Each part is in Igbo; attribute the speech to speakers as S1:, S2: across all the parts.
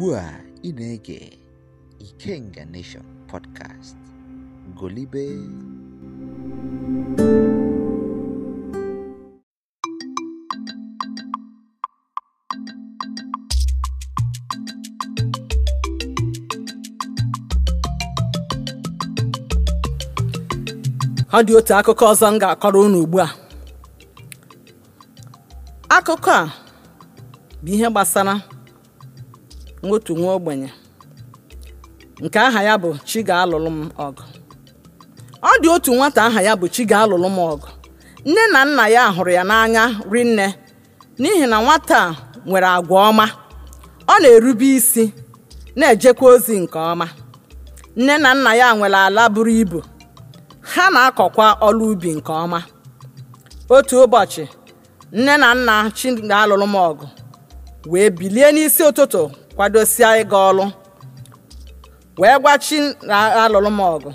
S1: ugbu a ị na-ege Ikenga Nation podcast golibe
S2: ọ dị otu akụkọ ọzọ m ga-akọrọ unu ugbu a akụkọ a bụ ihe gbasara nwotu nwa ogbenye nke aha ya bụ chi alụlụ m ọgụ ọ dị otu nwata aha ya bụ chi alụlụ m ọgụ nne na nna ya hụrụ ya n'anya rinne n'ihi na nwata a nwere agwa ọma ọ na-erube isi na-ejekwa ozi nke ọma nne na nna ya nwere ala buru ibu ha na-akọkwa ọlụ ubi nke ọma otu ụbọchị nne na nna chi alụlụ m ọgụ wee bilie n'isi ụtụtụ kwadosie ịga ọlụ wee gwa chi na alụlụ m ọgụ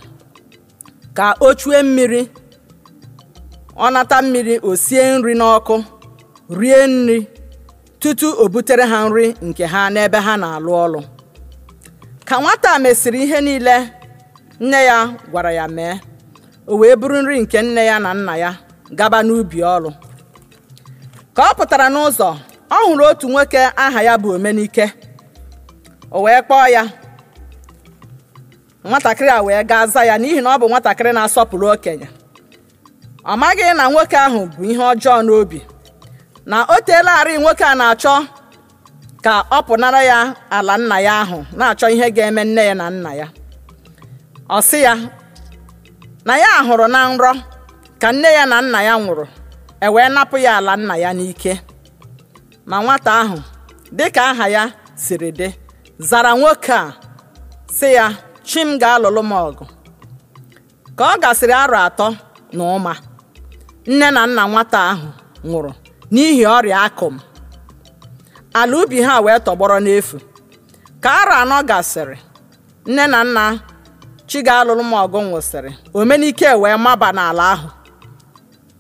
S2: ka o chue mmiri ọnata mmiri osie nri n'ọkụ rie nri tutu o butere ha nri nke ha n'ebe ha na-alụ ọlụ ka nwata mesịrị ihe niile nne ya gwara ya mee o wee buru nri nke nne ya na nna ya gaba n'ubi ọlụ ka ọ pụtara n'ụzọ ọ hụrụ otu nwoke aha ya bụ Omenike o wee kpọọ ya nwatakịrị a wee gaa za ya n'ihi na ọ bụ nwatakịrị na-asọpụrụ okenye ọ maghị na nwoke ahụ bụ ihe ọjọọ n'obi na o teelarị nwoke a na-achọ ka ọ pụnara ya ala nna ya ahụ na-achọ ihe ga-eme nne ya na nna ya ọ sị ya na ya hụrụ na nrọ ka nne ya na nna ya nwụrụ e wee napụ ya ala nna ya n'ike ma nwata ahụ dịka aha ya siri dị zara nwoke a sị ya chi m ga-alụlụ m ọgụ ka ọ gasịrị arọ atọ na ụma nne na nna nwata ahụ nwụrụ n'ihi ọrịa akụm ala ubi ha wee tọgbọrọ n'efu ka arọ anọ gasịrị nne na nna chi ga-alụlụ m ọgụ nwụsịrị omenike wee maba n'ala ahụ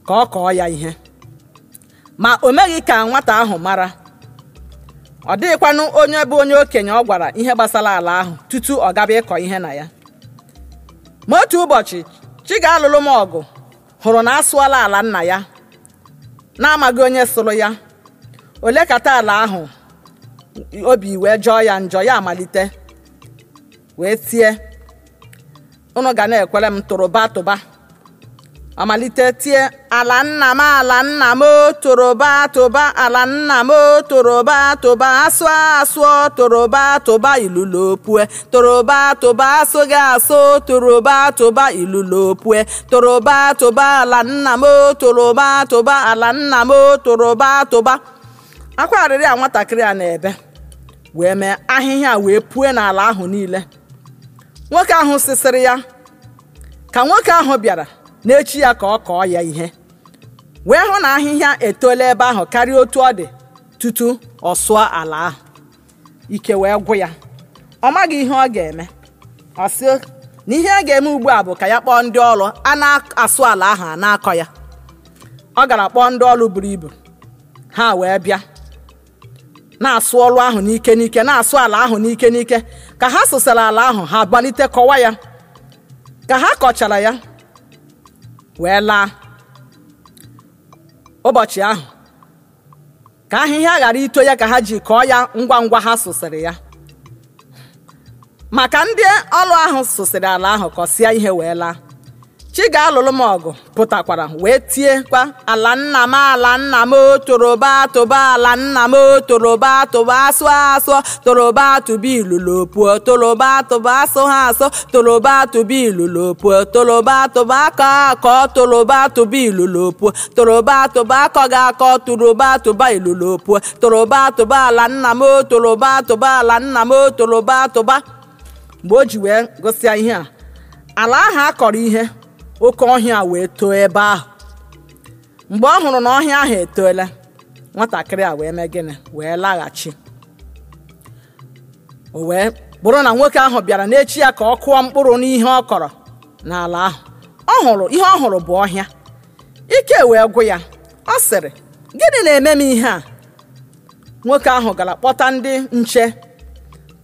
S2: ka ọ kọọ ya ihe ma o meghị ka nwata ahụ mara ọ dịghịkwanụ onye bụ onye okenye ọ gwara ihe gbasara ala ahụ tutu ọ gaba ịkọ ihe na ya ma otu ụbọchị Chiga-alụlụ m ọgụ hụrụ na asụọla ala nna ya na-amaghị onye sụrụ ya ole kata ala ahụ obi wee jọọ ya njọ ya amalite wee tie unu ga na-ekwere m tụrụba tụba amalite tie ala nna m ala nna m toroba tụba ala nna m toroba tụba asụ asụọ toroba tụba opue. toroba tụba asụghị asụ toroba tụba opue. toroba tụba ala nna m toroba tụba ala nna m toroba tụba akwa arịrị a nwatakịrị a na-ebe wee mee ahịhịa wee pue n'ala ahụ niile nwoke ahụ sịsịrị ya ka nwoke ahụ bịara n'echi ya ka ọ kọọ ya ihe wee hụ na ahịhịa etola ebe ahụ karịa otu ọ dị tutu ọ sụọ ala ahụ ike wee gwụ ya ọ maghị ihe ọ ga-eme ọ sị na ihe a ga-eme ugbu a bụ ka ya kpọọ ndị ọrụ a na-asụ ala ahụ a na-akọ ya ọ gara kpọọ ndị ọrụ buru ibu ha wee bịa na-asụ ọrụ ahụ n'ike n'ike na-asụ ala ahụ n'ike n'ike ka ha sụsara ala ahụ ha gbalite kọwa ya ka ha kọchara ya wee laa ụbọchị ahụ ka ahịhịa ghara ito ya ka ha ji kọọ ya ngwa ngwa ha sụsịrị ya maka ndị ọlụ ahụ sụsịrị ala ahụ kọsịa ihe wee laa chi ga-alụlụ m ọgụ pụtakwara wee tie kwa ala nna m ala nna m toroba tụba ala nna m toroba tụba asụ asụ toroba tụba ilulu puo toroba tụba asụ ha asụ toroba tụba ilulu puo toroba tụba akọ akọ toroba tụba ilulu puo toroba tụba akọ ga akọ toroba tụba ilulu puo toroba tụba ala nna m toroba tụba ala nna m toroba tụba mgbe o ji wee gụsịa ihe a ala ahụ akọrọ ihe oke ọhịa wee too ebe ahụ mgbe ọ hụrụ na ọhịa ahụ etoola nwatakịrị a wee mee gịnị wee laghachi o wee bụrụ na nwoke ahụ bịara n'echi ya ka ọ kụọ mkpụrụ n'ihe ọ kọrọ n'ala ahụ ọ hụrụ ihe ọ hụrụ bụ ọhịa ike wee gwụ ya ọ sịrị gịnị na-eme m ihe a nwoke ahụ gara kpọta ndị nche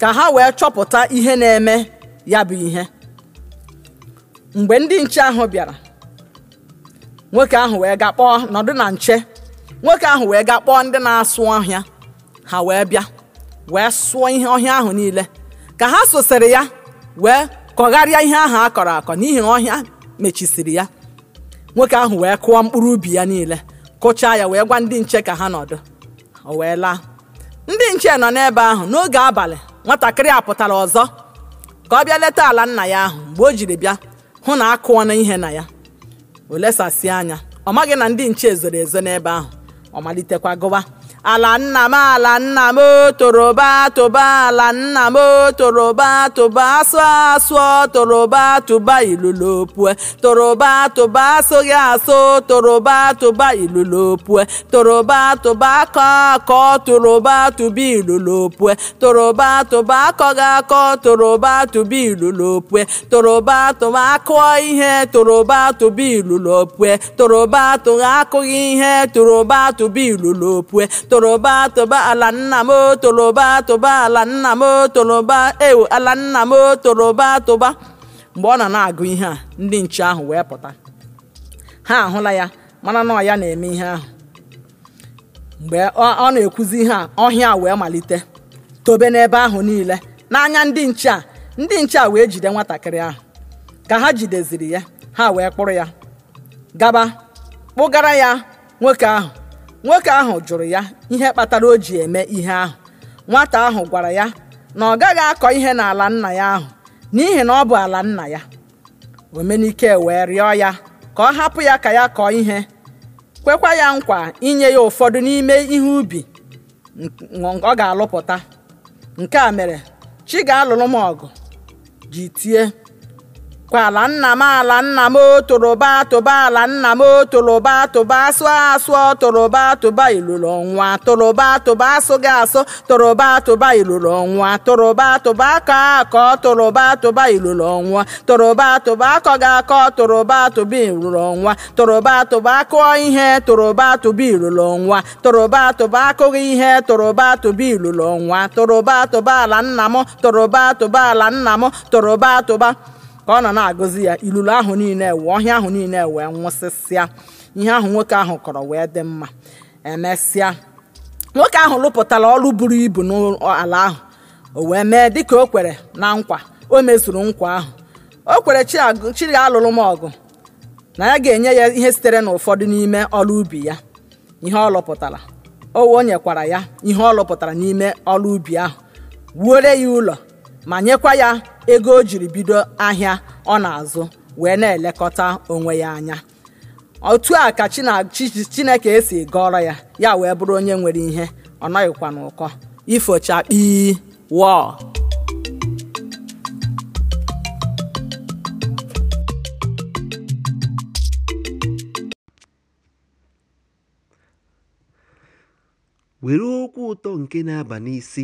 S2: ka ha wee chọpụta ihe na-eme ya bụ ihe mgbe ndị nche ahụ bịara nwoke ahụ wee ga kpọọ nọdụ na nche nwoke ahụ wee ga kpọọ ndị na-asụ ọhịa ha wee bịa wee sụọ ihe ọhịa ahụ niile ka ha sosere ya wee kọgharịa ihe ahụ a kọrọ akọ n'ihi na ọhịa mechisiri ya nwoke ahụ wee kụọ mkpụrụ ubi ya niile kụchaa ya wee gwa ndị nche ka ha nọdụ o wee laa ndị nche nọ n'ebe ahụ n'oge abalị nwatakịrị apụtara ọzọ ka ọ bịa leta ala nna ya ahụ mgbe o jiri bịa hụ na na ihe na ya o lesasị anya ọ maghị na ndị nche zoro ezo n'ebe ahụ ọ malitekwa gụwa ala nna m ala nna m oh, toroba tụba ala nna m oh, toroba tụba asụ asụọ oh, toroba tụba ilulopue toroba tụba asụghị asụ toroba tụba ilulopue toroba tụba akọ akọ toroba tụba ilulopue toroba tụba akọghị akọ toroba tụba toroba tụba akụọ ihe toroba tụba opue toroba tụba akụghị ihe toroba tụba opue. toroba toba ala nna m toroba toba ala nna m toroba ewu ala nna m toroba toba mgbe ọ nọ na-agụ ihe a ndị nche ahụ wee pụta ha ahụla ya mana na ya na-eme ihe ahụ mgbe ọ na-ekwuzi ihe a ọhịa wee malite tobe n'ebe ahụ niile n'anya ndị nche a ndị nche a wee jide nwatakịrị ahụ ka ha jideziri ya ha wee kpụrụ ya gaba kpụgara ya nwoke ahụ nwoke ahụ jụrụ ya ihe kpatara o ji eme ihe ahụ nwata ahụ gwara ya na ọ gaghị akọ ihe n'ala nna ya ahụ n'ihi na ọ bụ ala nna ya omenike wee rịọ ya ka ọ hapụ ya ka ya kọọ ihe kwekwa ya nkwa inye ya ụfọdụ n'ime ihe ubi ọ ga-alụpụta nke a mere chi ga-alụrụ m ọgụ ji tie ala nna m ala nna m tụrụba tụba ala nna m tụrụba tụba sụọ asụọ tụrụba tụba iluru ọnwa tụrụba tụba gị asụ tụrụba tụba iluru ọnwa tụrụba tụba akọ akọ tụrụba tụba iluru ọnwa tụrụba tụba akọghị akọ tụrụba tụba iluru ọnwa tụrụba tụba akụọ ihe tụrụba tụba iluru ọnwa tụrụba tụba akụghị ihe tụrụba tụba iluru ọnwa tụrụba tụba ala nna m tụrụba tụba ala nna m tụrụba tụba ka ọ nọ na-agụzi ya ilulu ahụ niile ewe ọhịa ahụ niile wee nwụsịsịa ihe ahụ nwoke ahụ kọrọ wee dị mma emesịa nwoke ahụ lụpụtara ọrụ buru ibu n'ala ahụ o wee mee dịka o kwere na nkwa o mezuru nkwa ahụ o kwere chiri alụrụ m ọgụ na ya ga-enye ya ihe sitere n'ụfọdụ n'ime ọrụ ubi ya ihe ọ lụpụtara o nyekwara ya ihe ọ lụpụtara n'ime ọrụ ubi ahụ wuore ya ụlọ ma nyekwa ya ego o jiri bido ahịa ọ na-azụ wee na-elekọta onwe ya anya otu a ka chineke esi gọrọ ya ya wee bụrụ onye nwere ihe ọ nọghịkwa ụkọ ifocha kpii wọọ
S1: were okwu ụtọ nke na-aba n'isi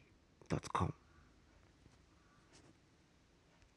S1: com.